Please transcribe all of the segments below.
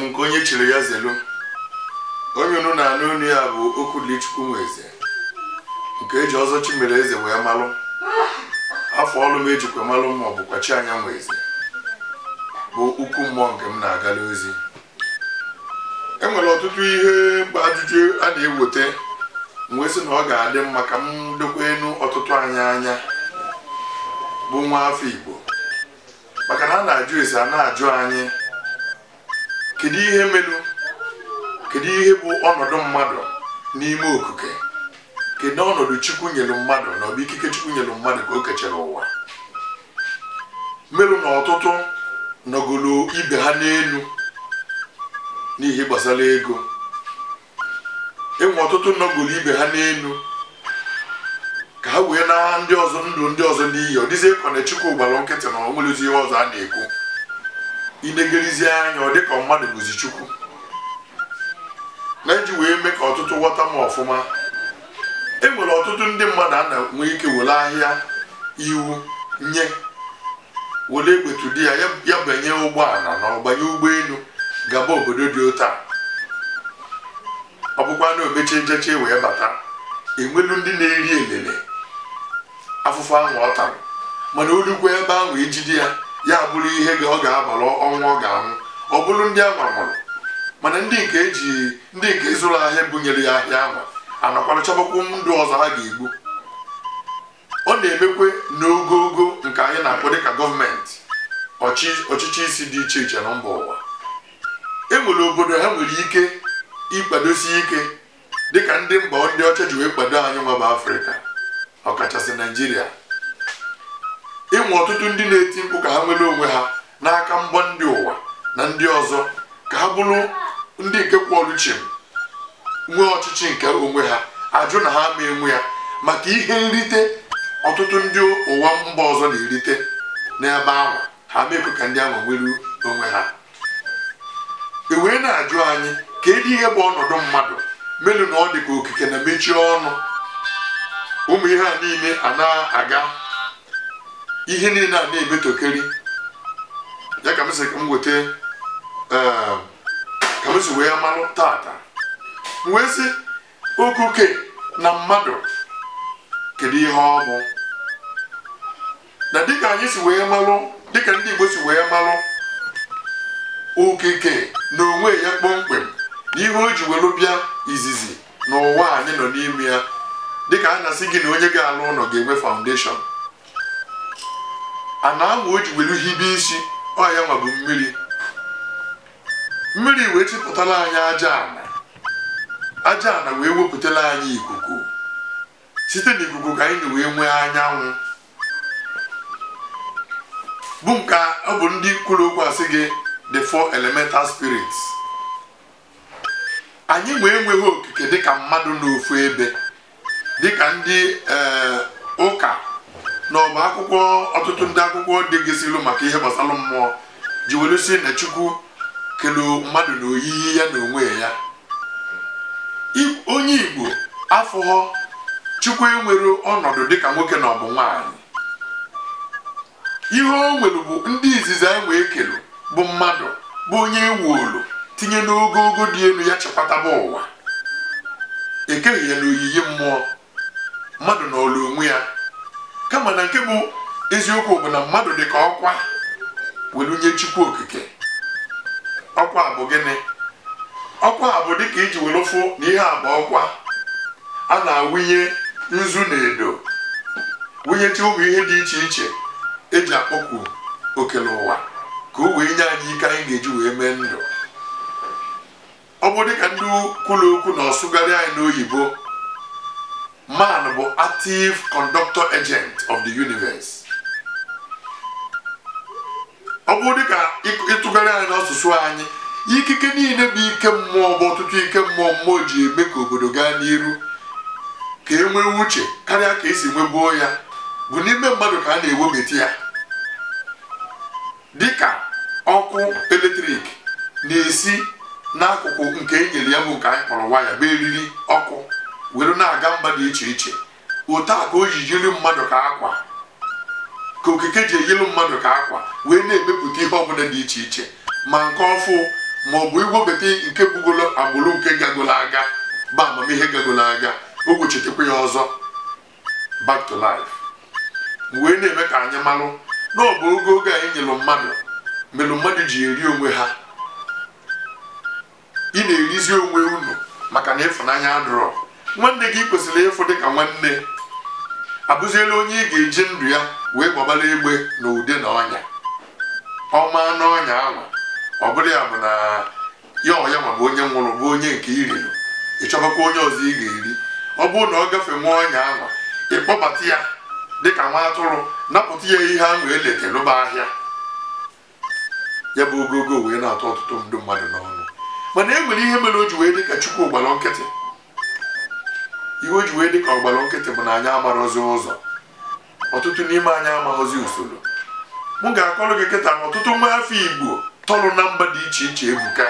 m nke onye chiri ya zelu onye unu na-anụ unu ya bụ Okwulichukwu Nweze nke eji ọzọ chimere eze wee malụ afọ ọlụ m ejikwa malụ ma ọ bụkwa chi anya Nweze bụ ukwu mmụọ nke m na-agala ozi e nwere ọtụtụ ihe mkpa ajụjụ a na-eweta wee sị na ọ ga-adị mma ka m dokwa ọtụtụ anyị anya bụ nwa afọ Igbo maka na a na-ajụ ese a na-ajụ anyị kedu ihe melu kedu ihe bụ ọnọdụ mmadụ n'ime okike kedu ọnọdụ chukwu nyelu mmadụ na ọbụ ikike chukwu nyelu mmadụ ka o kechara ụwa melu na ọtụtụ nọgolo ibe ha n'elu n'ihe gbasara ego enwe ọtụtụ nọgolo ibe ha n'elu ka ha wee na ndị ọzọ ndụ ndị ọzọ n'iyi ọ dịzie ka chukwu gbara nkịtị na ọ nwere ihe ọzọ a na-ekwu inegelizie anya ọ dịka mmadụ bụzi chukwu na iji wee mee ka ọtụtụ ghọta m ọfụma e nwere ọtụtụ ndị mmadụ a na-enwe ike were ahịa iwu nye were egbetu di ya ya banye ụgbọala na ọgbanye ụgbọelu gaba obodo dị ụta ọ bụkwa na omechi njeche wee bata enwelu ndị na-eri elele afụfụ ahụ ọ tara mana olukwa ebe ahụ ijide ya ya bụrụ ihe ọ ga-abalụ ọnwa ọ ga-anwụ ọ bụrụ ndị a mana ndị nke eji ndị nke zụrụ ahịa bunyere ya ahịa anwa anakwara chọbakwu ndụ ọzọ ha ga-egbu ọ na-emekwe n'ogogo nke anyị na-akpọ dịka gọọmenti ọchịchị isi dị iche iche na mba ụwa e nwere obodo ha nwere ike ịkwadosi ike dịka ndị mba ndị ọcha ji wee kwado anyị nwa bụ afrịka ọkachasị naijiria inwe ọtụtụ ndị na-eti mkpu ka ha nwere onwe ha n'aka mbọ ndị ụwa na ndị ọzọ ka ha bụrụ ndị nke kwọọrụ chim nwee ọchịchị nke onwe ha ajụ na ha ma enwe ya maka ihe nrite ọtụtụ ndị ụwa mba ọzọ na-erite n'ebe ahụ ha mekwe ka ndị ahụ nwere onwe ha e wee na-ajụ anyị ka edi ihe bụ ọnọdụ mmadụ melu na ọ dị ka okike na mechie ọnụ ụmụ ihe a niile a na-aga ihe niile a na-ebetokeri ya ka m si ka m ehm, ka m si wee malụ tata wee sị okuke na mmadụ kedu ihe ọ bụ na dịka anyị si wee malụ dịka ndị Igbo si wee malụ okike na onwe ya kpọmkwem na ihe o ji were bịa izizi n'ụwa anyị nọ n'ime ya dịka a na-asị gị na onye ga-alụ ụlọ ga-enwe foundation ana anwa o ji ihe ibe isi ọya ma bụ mmiri mmiri wee chịpụtala anyị aja ana aja ana wee wepụtala anyị ikuku site n'ikuku ka anyị wee nwee anyanwụ bụ nke ọ bụ ndị kwuru okwu gị the four elemental spirits anyị wee nweghị okike dịka mmadụ n'ofu ebe dịka ndị ee eh, na ọba akwụkwọ ọtụtụ ndị akwụkwọ degịsịlụ maka ihe gbasara mmụọ ji were si na chukwu kelu mmadụ na oyiyi ya na onwe ya onye igbo afọghọ chukwu enwere ọnọdụ dịka nwoke na ọbụ nwanyị ihe o nwere bụ ndị izizi anyị wee kelu bụ mmadụ bụ onye ewolu tinye n'ogogo dị elu ya chekwataba ụwa ekeghị ya na oyiyi mmụọ mmadụ na ọlụ onwe ya kama na nke bụ eziokwu bụ na mmadụ dị ka ọkwa welu nye chukwu okike ọkwa bụ gịnị ọkwa bụ dịka iji were fụ na ihe a bụ ọkwa a na-awụnye nzu na edo wụnyecha ụmụ ihe dị iche iche eji akpọkwu okele ụwa ka o wee nye anyị ike anyị ga-eji wee mee ndụ ọ bụ dịka ndị kwuru okwu na ọsụgharị anyị n'oyibo man bụ active conductor agent of the universe ọ bụ dịka ịtụgharị anyị n'asụsụ anyị ikike niile bụ ike mmụọ bụ ọtụtụ ike mmụọ mmụọ ji eme ka obodo gaa n'iru ka e nwee uche karịa ka esi nwebuo ya bụ n'ime mmadụ ka a na-ewebata ya dịka ọkụ eletrik na-esi n'akụkụ nke enyere ya bụ nke anyị kpọrọ waya bụ eriri ọkụ were na-aga mba dị iche iche otu a ka o ji yiri mmadụ ka akwa ka okike ji eyiri mmadụ ka akwa wee na-emepụta ihe ọbụla dị iche iche ma nke ọfụ ma ọ bụ igwebeta nke bugolo agbụrụ nke gagolo aga ba amamihe gagolo aga o gbochitekwa ya ọzọ back to life wee na-eme ka anyị malụ na ọ bụ oge oge anyị nyelụ mmadụ melụ mmadụ ji eri onwe ha ị na-erizi onwe unu maka na ịfụnanya adụrọ nwanne gị kwesịrị ịfụ dị ka nwanne abụziela onye ị ga-eji ndụ ya wee gbabara egbe na ude na ọnya ọma n'ọnya ahụ ọ bụrụ ya bụ na ya ọya ma bụ onye nwụrụ bụ onye nke iriri ịchọbakwa onye ọzọ ị ga-eri ọ bụrụ na ọ gafe nwa ọnya ahụ ịkpọbata ya dịka nwa atụrụ napụta ya ihe ahụ eleke lụba ahịa ya bụ ogogo wee na-atọ ọtụtụ ndụ mmadụ n'ọnụ mana e nwere ihe mere o ji wee dị ka chukwu gbara nkịtị iwe ji wee dị ọgbara nkịtị bụ na anyị amarụzi ụzọ ọtụtụ n'ime anyị amaghọzi usoro m ga-akọrọ gị kịta na ọtụtụ nwa afọ igbo tọrụ na mba dị iche iche ebuka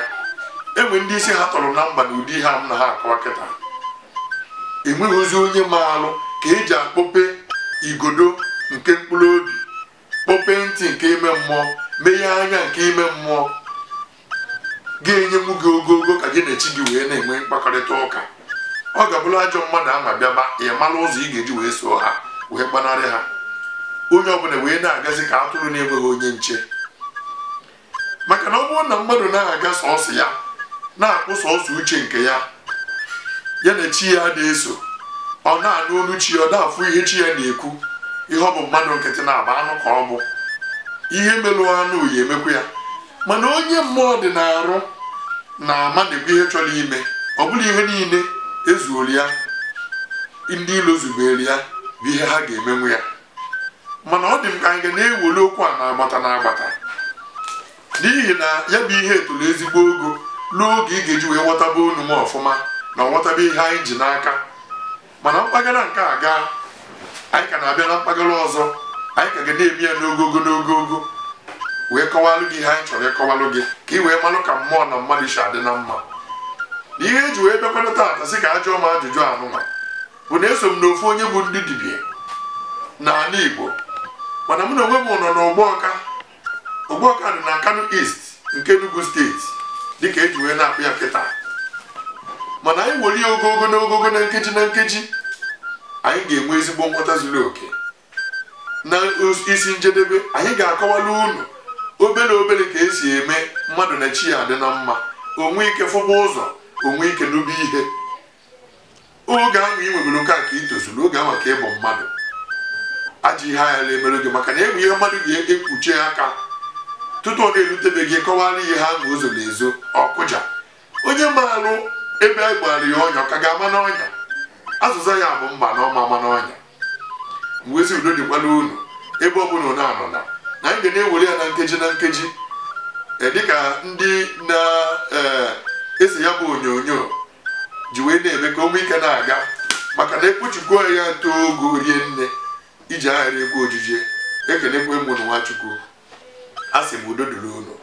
enwe ndị isi ha tọrọ na mba na ụdị ha m na ha akọwa kịta enweghị onye maalụ ka eji akpọpe igodo nke mkpụrụ obi kpọpe ntị nke ime mmụọ meghe anya nke ime mmụọ ga-enye m gị ogogo ka gị na echi gị wee na-enwe mkpakọrịta ụka ọ ga-abụrụ ajọ mmadụ ama bịaba ị mara ụzọ ị ga-eji wee soo ha wee gbanarị ha onye ọbụla wee na-agazi ka atụrụ na-enweghị onye nche maka na ọ bụrụ na mmadụ na-aga sọọsọ ya na-akpụ sọọsọ uche nke ya ya na chi ya na-eso ọ na-anụ olu chi ọ na-afụ ihe chi ya na-ekwu ihe ọ bụ mmadụ nkịtị na-agba anụ ka ọ bụ ihe melụ anụ ya emekwa ya mana onye mmụọ dị na arụ na ama na-ekwu ihe chọrọ ime ọ bụla ihe niile ezuola ya ndị ilo zubere ya bụ ihe ha ga-emenwu ya mana ọ dị m ka anyị ga na-ewere okwu a na-agbata n'agbata agbata n'ihi na ya bụ ihe etolu ezigbo ogo n'oge ị ga-eji wee ghọtaba unu m ọfụma na nghọtaba ihe anyị ji n'aka mana mpaghara nke a gaa anyị ka na-abịa na mpaghara ọzọ anyị ka ga na-eme ya n'ogogo n'ogogo wee kọwalụ gị ihe anyị chọrọ ịkọwalụ gị ka ị wee malụ ka mmụọ na mmadụ si adị na mma ihe eji wee bịakwana taata sị ka a m ajụjụ anụnwa bụ na eso m na ofu onye bụ ndị dibịa n'ala Igbo mana mụ na onwe m nọ na Ogbuọka Ogbuọka dị na Kano East nke Enugu steeti dịka eji wee na-akpụ ya mana anyị ya ogogo na ogogo na nkeji na nkeji anyị ga-enwe ezigbo nghọta zuru oke na isi njedebe anyị ga-akọwala unu obere obere ka esi eme mmadụ na chi ya adị na mma onwe ike fụba ụzọ onwe ike n'ubi ihe oge ahụ ị nwebere oke a ka ị tozuru oge ahụ ka ịbụ mmadụ ajọ ihe agha emere gị maka na egwu ihe mmadụ ga-ekpuchi aka tutu ọ na-erutebe gị kọwara ihe ha ma ụzọ na ezo ọkụja onye maalụ ebe a gbara ya ọnya ka ga-ama n'ọnya azụza ya bụ mba na ọma ama n'ọnya mgbe ezi udo dịkwa n'ụlọ ebe ọ bụla na-anọ na anyị ga na-ewere ya na nkeji na nkeji dịka ndị na esi ya bụ onyonyo ji wee na-eme ka ụmụ ike na-aga maka na ekpuchikwo ya too ogo rie nne iji aghara egwu ojije ekenekwe mụ na nwachukwu a sị m udo dịrị ụlọ